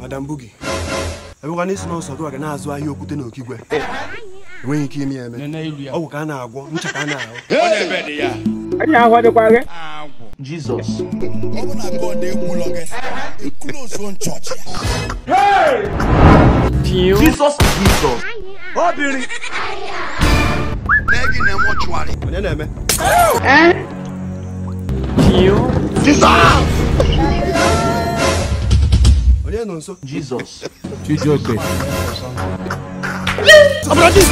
madam bugi enwekwana isi n'ọsọ gị waga na-azụ ahịa okwute na okigwe enweghị ike ime eme ọgwụ ka a na-agwọ ncha ka a na-ahụ na-ebe Jizọs ya. n'egi na ọ dịkwa jisọs onye na-eme Jizọs nà ń Jesus Chijioke. ọ̀bùrọ̀ Jesus.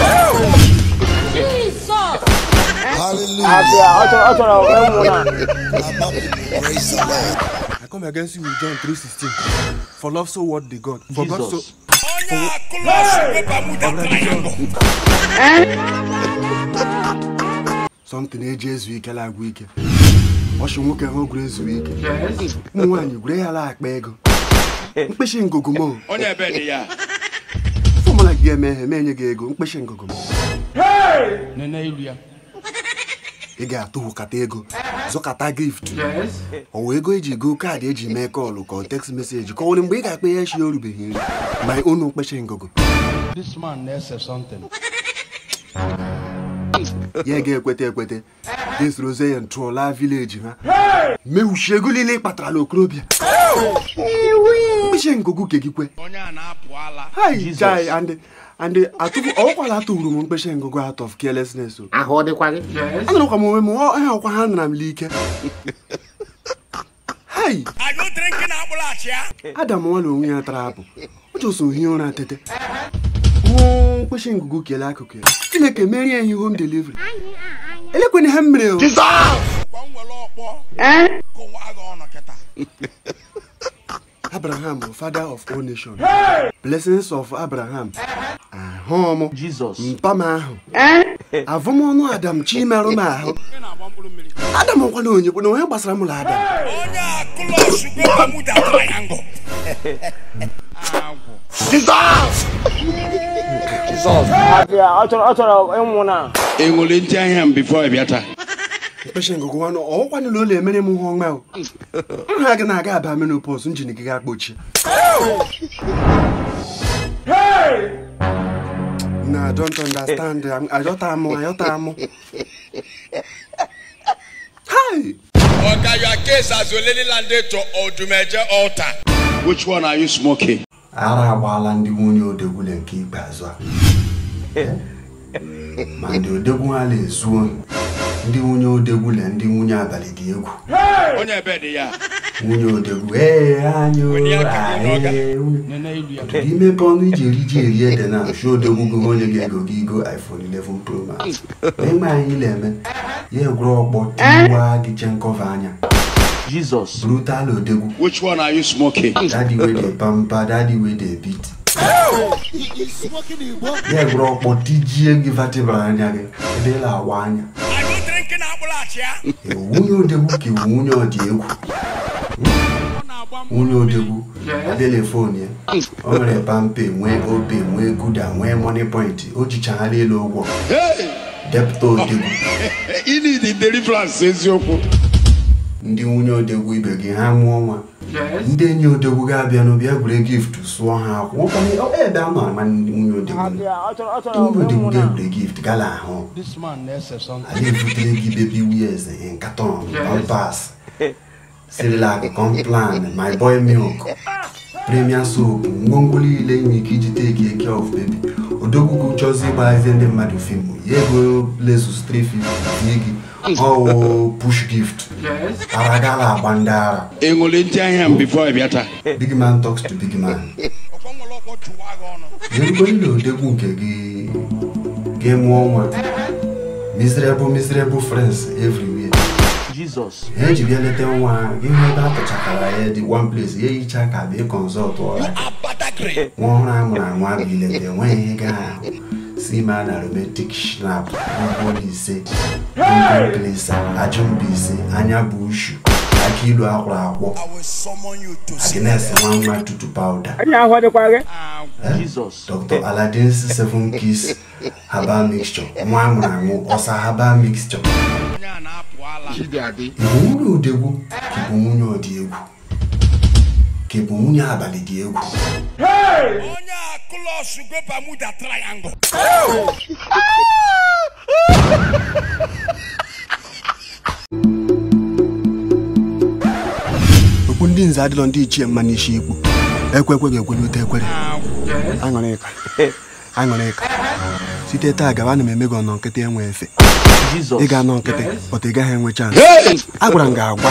Jesus. Hallelujah. I come against you with John three sixteen. For love so what the God. For Jesus. God so. Ọ̀nà àkọlọ́ ṣe pé Bàmúdà kàn yín bọ̀ sọmtin eji ezu ike lagwụ ike ọchụ nwoke ha gwuru ezu ike ụmụ nwaanyị gwure ya la ego ike mkpịsị ngụgụ m onye ebe dị ya fọmụla gị emeghe ma enye gị ego mkpịsị ngụgụ é nene ilu ya ị ga-atụhụ kata ego zụkata gift ọ wee ego eji go kaadị eji mee kọlụ é text meseji kọwere mgbe ị ga-akpa ya echi orubeghị nri ma unu o ngụgụ this man na-ese something ya ga-ekweta ekweta ga-esorozie ya ntụọla vileji ha mewuchie ego niile ị kpatara na okorobịa uche ngụgụ gegikwe andị ọkwala atụrụ m mkpeche ngụgụ out of carelessness oh. m onwe m ha ọkwa ha nara m l'ike adam nwala onwe ya tara apụ o hi hie ụra tete nwụọ mkpeche ngụgụ kelee akụkụ ya chineke merie ya ihe home delivery elekwana ha mere oh. abraham father of all nations blessings of abraham ahụ m mpam ahụ eh? avụmọnụ adam chimerụ m ahụ adam ọkwana onyekwu na onye gbasara mụrụ adam ọ chọrọ ịnwụ na enwere ntị ahịa m bifo ịbịa taa mkpeshe ngụgụ nwanụ ọwụkwanụ na ụlọ emere m ihe ọma nha gị na-aga aba menopọs njin gị ga-akpọchi na don't understand ayọta amụ ayọta amụ Oga, you are case as Olelilande to Odumeje altar. Which one are you smoking? Ara agbaala ndị nwunye odegwule nke ikpeazụ a eh. ma ndị odegwu ha na-ezuo ndị nwunye odegwu na ndị nwunye abalị dị egwu nwunye odegwu imepe ọnụ iji eri ji eri ede na asụ odegwu gị onye ga-ego gị ego iphone eleven pro max ịma anyị na-eme ya egwuru ọkpọ tiwa gị chenkova anya Jesus. Brutal Odegu. Which one are you smoking? Daddy with the bumper, daddy with the beat. Yeah, bro, but DJ give vertebra anya. Ebe la wanya. nwunye odegbu ka iwu nwunye ọdị egwu nwunye odegbu adịla fonu ya o nwere pampe nwee obe nwee guda nwee moni point o jichaghara elu ụgwọ depụta odegbu ndị nwunye odegwu ibe gị ha mụọ nwa ndị enyi odogwu ga-abịa n'obi egwure gift sụọ ha akwụ oh, ebe eh, a ma ama nwunye odogwu ga-egwure gift gala ahụ anyị ebutere gị bebi wiez nkaton pampas sirilac complan my boy milk premia soap ngwongwo niile nwere ike iji teki eke of bebi odogwu chọzi ịgbazi e, ndị mmadụ fim ya ego lezus 350 gị ọwụ push gift Aragala agba ndị ara. Enwere ntị Big man talks to big man. ndị nke gị gị mụọ nwa. Miserable miserable friends everywhere. Jesus. Ha eji bịa leta nwa gị hụ ebe a tụchakara ya dị one place ya ehicha ka bịa kọnsọlt ọra. Nwa ọhụrụ a anwa bụ ileta enweghị ga ahụ. si ma na romantic shnap ise plesa ajụmbise anya bụ ushu aka ilu akwụrụ akwọ agnes eh? nwa nwa tutu pawuda dr aladins seven keys herbal mixture nwa amụrụ anwụ ọsa herbal mixture ibu nwunye odegwu bụ nwunye ọdị egwu ke bụ nwunye abalị dị egwu onye okwu ndị nze adịlọ ndị ichie mma n'isi ikwu ekwe ekweghị ekwenute ekwere aṅụrịka site taa gaba ana m eme gị ọnọ nkịtị enwe efe ị ga-anọ nkịtị pọta ị gaghị enwe chansị agwara m gị agwa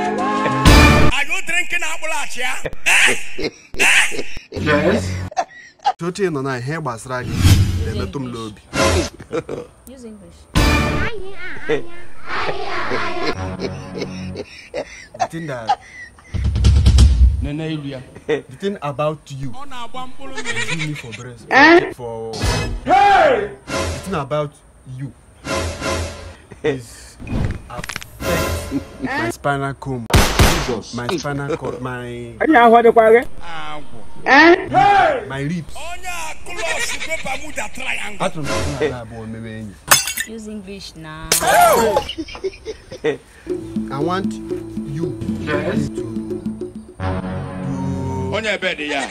Are you drinking apple eh? Yes. Tote nọ na ihe gbasara gị na-emetụ m Use English. The thing that Nene Ilia, the thing about you, kill me for breast, eh? for hey, the thing about you eh? is affect my spinal comb. Jesus. My spinal cord. My. Ẹni àwọn ọdẹ kọ Eh? My ribs. Ọ̀nyà kúlọ̀sì pépà mú dà triangle. Bàtò mi kún àlá àbọ̀ mẹ́rẹ̀ ẹ̀yìn. Use English now. I want you. Yes. To Onye ebe dị ya.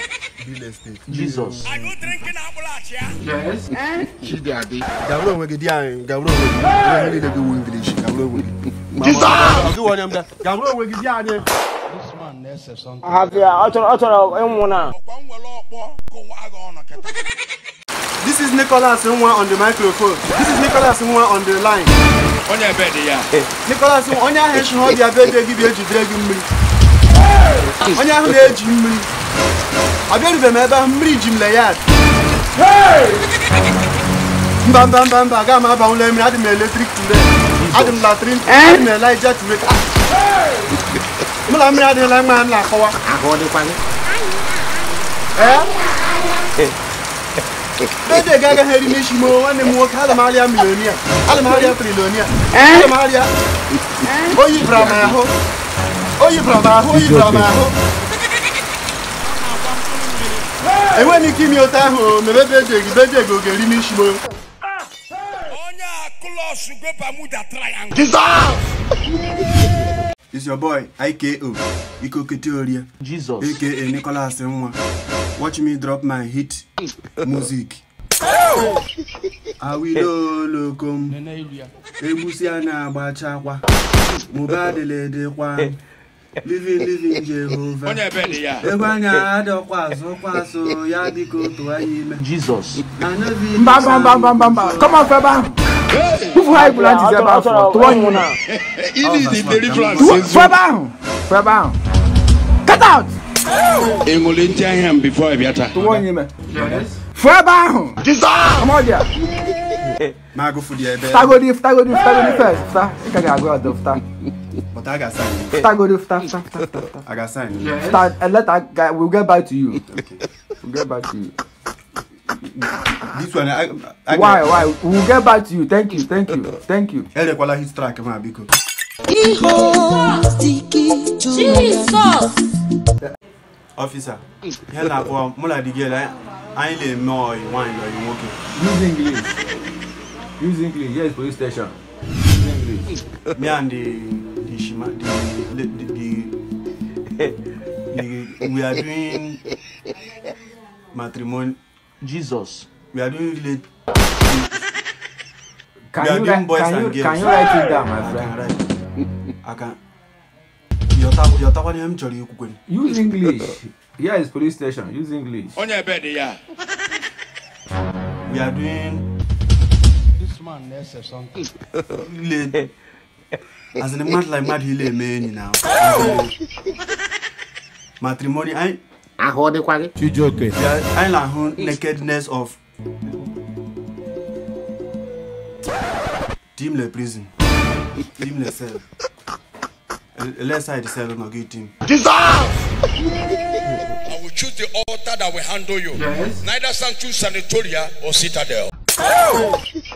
Real estate. Jesus. Are you drinking Ambulance, ambulachia? Yes. Eh? Chidi Adi. Gawuro onwe gị di anyị. Gawuro onwe gị. Onye niile gị wu English. Gawuro onwe gị jisa. This is Nicholas Nwa on the microphone. This is Nicholas Nwa on the line. Onye ebe dị ya. Eh, Nicholas Nwa onye ahụ echi ọ bịa be dị gị bịa jidere gị mmiri. Onye ahụ na-eji mmiri. Ọ bịarubeghị m ebe ahụ mmiri ji m le ya. Mba mba mba mba agaghị m abanwụla mmiri adị m eletrik tule. adị m latrin na elija Hey! mụ na mmiri adịghịla mma ha na-akọwa dede eh? eh? ga agaghị Hey! Hey! m nwanne m nwoke ada m arịa milonia ada m arịa trilonia Hey! Eh? m arịa oyi bara m ahụ oyi bara m ahụ oyi bara Hey! ahụ enweghị m ike ime ote ahụ mebe bejeg bejeg ga-eri n'isi m all should go Bermuda Triangle. Jesus! It's your boy, IKO, Iko Keteoria. Jesus. AKA Nicholas Mwa. Watch me drop my hit music. awilolokom egbusi a na-agbachakwa mụba adeledekwa living living Jehovah. Ego anya adọkwa azụ kwa azụ ya dịka otu anyị Jesus. Mba mba mba mba mba mba come on fẹ́ bá. Fúfú ha ìgbìlá ti sẹ́ bá fún ọ, tọwọ́ yín náà. Ili di deliverance ezu. Fẹ́ bá out. Enwere ntị ahịa m before ị bịata. Tọwọ́ yín mẹ. Fẹ́ bá ahụ. Jesus. Ọmọ ọdịa. Mago di ebe. Fta go di, fta go di, fta go di first. Fta. I ka ga go out of fta. But I got sign. Fta go di, fta, fta, fta, fta. I got sign. Yes. Fta, and eh, let that guy, we'll get back to you. Okay. We'll get back to you. This one, I, I why, why? We'll get back to you. Thank you, thank you, thank you. Ele kwala Hit track, ma biko. Jesus. Officer, here na kwa mula di girl, I ain't le know you want you nwoke. Use English. Use English. Yes, police station. Use English. Me and the the shima the the, the, the, the we are doing matrimony. Jesus. We are doing late. Can we are you doing boys can and you, girls. Can you write it down, my friend? I can. Your tapa name chori ukukweni. Use English. Here is police station. Use English. On your bed, yeah. We are doing As in a man like mad, he man now. Matrimony, I. I hold the quality. You joke. Yeah, I like nakedness of. Team le prison. Team the cell. Let's side cell on a good team. Dissolve! I will choose the altar that will handle you. Yes. Neither shall choose sanatoria or citadel. Oh.